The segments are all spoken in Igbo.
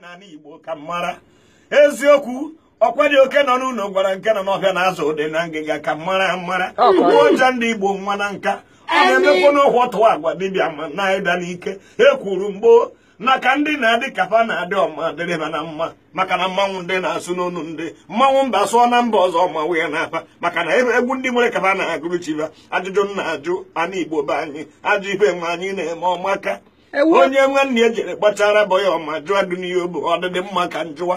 n'ala Igbo ka mara eziokwu ọkwa dị oke nọ n'ụlọ gwara nke nọ n'ọhịa na-azụ ụdị na ngịga ka mara mara igbo ọja ndị Igbo nwa na nka ọ na-emekwa n'ụkwụ ọtụ agwa dibịa ma na-ịda n'ike e kwuru mgboo maka ndị na-adị kapa na-adị ọma dịrịba na mma maka na mmanwụ ndị na-asụ n'onu ndị mmanwụ mba sụọ na mba ọzọ ma wee na-apa maka na egwu ndị nwere kapa na-agụrụ ajụjụ na-ajụ ana Igbo be anyị ajụ ife nwe anyị na-eme ọmaka onye nwanne ya jere kpatara bụ ya ọma jụọ duniya bụ ọdịdị mma ka njụwa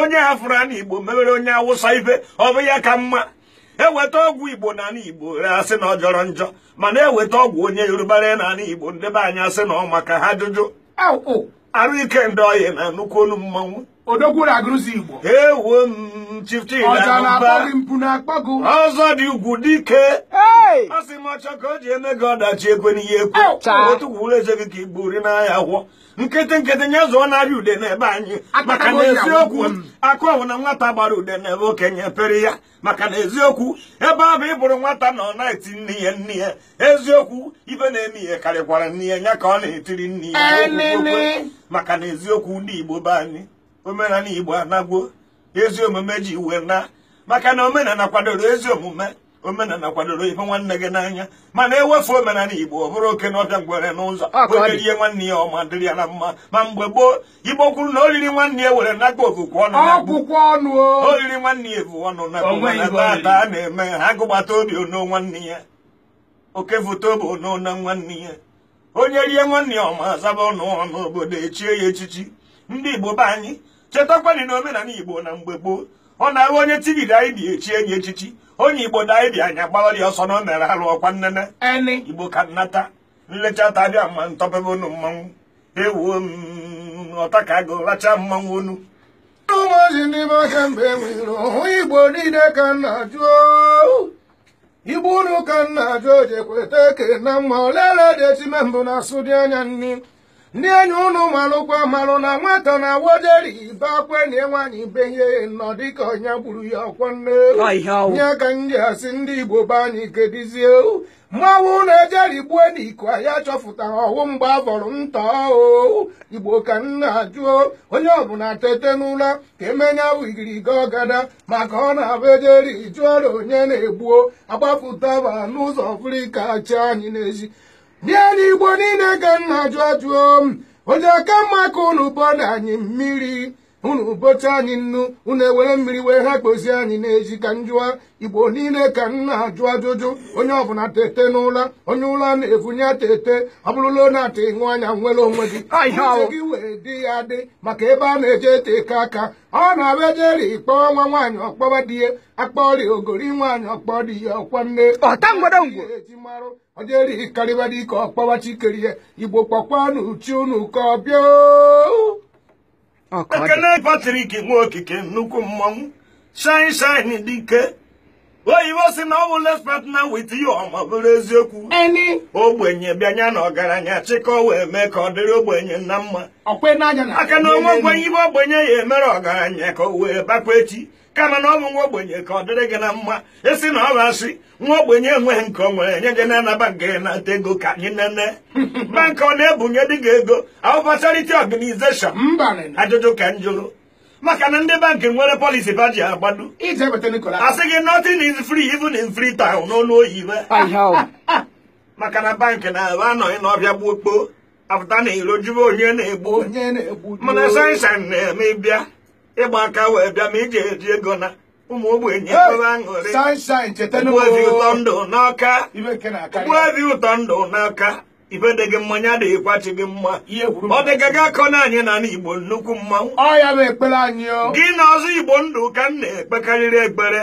onye afụrụ ana igbo mewere onye awụsa ife ọ bụ ya ka mma eweta ọgwụ igbo na ana igbo e asị na ọ jọrọ njọ mana eweta ọgwụ onye yorubara na ana igbo ndebe anyị asị na ọ maka ha jụjụ arụ ike ndị ọhịa na nnukwu olu mmanwụ ewo m chifchi ọzọ dị ugwu dike ọ sị m ọchọ ka o ji eme gị ọdachi ekwe n'ihe ekwu otukwuwụlụ eze gị ka i buru n'ahịa gwọ nkịtị nkịtị nye zụọ narị ude n'ebe anyị maka na eziokwu akụ ọwụ na nwata gbara ude n'ebe okenye pere ya maka na eziokwu ebe ahụ bụ ịbụrụ nwata nọ na-eti nne ya nne ya eziokwu ibe na-eme ihe karịkwara nne ya ya ka ọ na-etiri nne ya maka na eziokwu ndị Igbo be anyị omenala Igbo anagwo ezi omume ji iwe na maka na omenala kwadoro ezi omume omenala kwadoro ife nwanne gị n'anya mana ewefu omenala igbo ọ bụrụ oke na ọbịa ngwere n'ụzọ ihe nwanne ya ọma dịrị ya na mma ma mgbe gboo igbo kwuru na oriri nwanne ya were n'agba okwukwe ọnụ oriri nwanne ya ebu ọnụ na taata a na-eme ha gụgbata obi ono nwanne ya oke foto bụ ono na nwanne ya onye rie nwanne ya ọma zaba ọnụ ọnụ obodo echie ya echichi ndị igbo be anyị chetakwanị na omenala igbo na mgbe gboo ọ na-ahụ onye anyị daịbi echi enyi echichi onye igbo dị anya gbawara ọsọ na ọ mere arụ ọkwa nnene igbo ka nnata nlecha tabịa ma ntọpebe unu mmanwụ ewuo mm, ọta ka agụ racha mmanwụ onu ụmụozi n'ime ọhịa mgbe e nwere hụ igbo niile ka nna jụọ igbo unu ka nna jụọ kweta eke na mma olele dị etime mbụ na asụ dị anya nne ndị enyi ụnụ marụkwa marụ na nwata na woderi be akwenye nwaanyị be ihe nọ dịka onye gburu ya ọkwa nne nye ka ndị asị ndị igbo be anyị kedizie mmanwụ na gbuo n'iko ya chọfụtara ọwụ mgbe a nta o igbo ka nna ajụọ onye ọbụla tete n'ụra ka emenya wigiriga ọgada maka ọ na-abụ ejeri jụọra onye na-egbuo agbapụtaba n'ụzọ afrịka chi anyị n'ezi bịa n'igbo niile ka nna jụọ jụọ m oji aka mma ka unu anyị mmiri unu bocha anyị nnu unu ewere mmiri wee ha kpozie anyị n'ezi ka njụa igbo niile ka nna ajụ ajụjụ onye ọbụla tete n'ụla onye ụla na-evunye tete abụrụla na-ata ịṅụ anya nwere onwe gị gị wee dị ya dị maka ebe a na-eje ete eke aka ọ na-abịa jeri nwa nwaanyị ọkpọwa di akpa akpọri ogori nwaanyị ọkpọ di ya ọkwa nne eji marụ ọjeri karịba dike ọkpọba chikeri ya igbo kpọkwa n'uchi unu ka ọ bịa ekele Patrik okike nnukwu mmanwụ shine shine dike oyibo si na ọ bụ les partner with you ọma bụrụ eziokwu ogbenye bịanya na ọgaranya chịkọ wee mee ka ọ dịrị ogbenye na mma aka na onwe ogbenye ibe ogbenye ya emere ọgaranya ka o wee bakwa echi kama na ọ bụ nwa ogbenye ka ọ dịrị gị na mma esi na ọ asị nwa ogbenye enweghị nke ọ nwere nye gị nana bank gị ego ka anyị nene bankị ọ na-ebunye dị gị ego awụbachariti organization ajụjụ ka m jụrụ maka na ndị bankị nwere polisi ba ji agbado asị gị nothing is free even in free town n'olu oyibo maka na bankị na-ebe anọghị n'ọbịa gbuo kpoo afụta na iro jube onye na-egbu mana sansan na-eme eh, bịa ịgba aka wee bịa ma iji eji ego na ụmụ ogbenye ebe aṅụrị ụtọ ndụ n'ọka ife gị mmanya adịghị kwachi gị mma ọ dịga gị akọ na anyị na igbo nnukwu mmanwụ ọya bụ ekpere anyị o. gị na ọzọ igbo ndụ ka m na-ekpekarịrị ekpere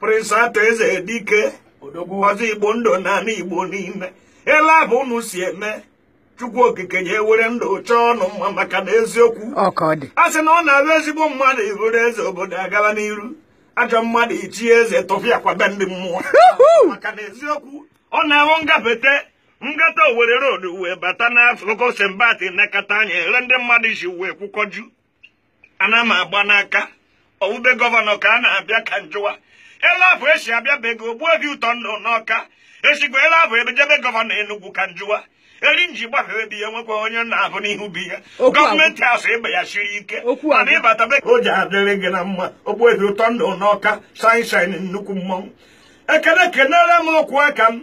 prịnsị atọ eze dike ọzọ igbo ndụ na ana igbo niile ele abụ unu si eme chukwu okike ya ewere ndụ chọọ ọnụ mma maka na eziokwu a sị na ọ na abụ ezigbo mmadụ iburu eze obodo agaba n'iru ajọ mmadụ ichie eze tụfịa kwabe ndị mmụọ maka na eziokwu ọ na-ahụ ngafete ngata owere road wee bata na n'akụkụ sembati nakata anya ere ndị mmadụ isi wee kwụkọju ana m agba n'aka owube gọvanọ ka a na-abịa ka njụwa ele afọ esi abịa be gị ogbuo gị ụtọ ndụ n'ọka esikwa ele afọ ebejebe gọvanọ enugwu ka njụwa eri nji gbafere bi ya nwekwa onye na-abụ n'ihu bi ya gọọmenti asụ ịba ya siri ike mana ịbata be ka o ji adịrị gị na mma ogbuo gị ụtọ ndụ n'ọka saịn saịn nnukwu mmọnwụ ekene kenere m ọkwụ aka m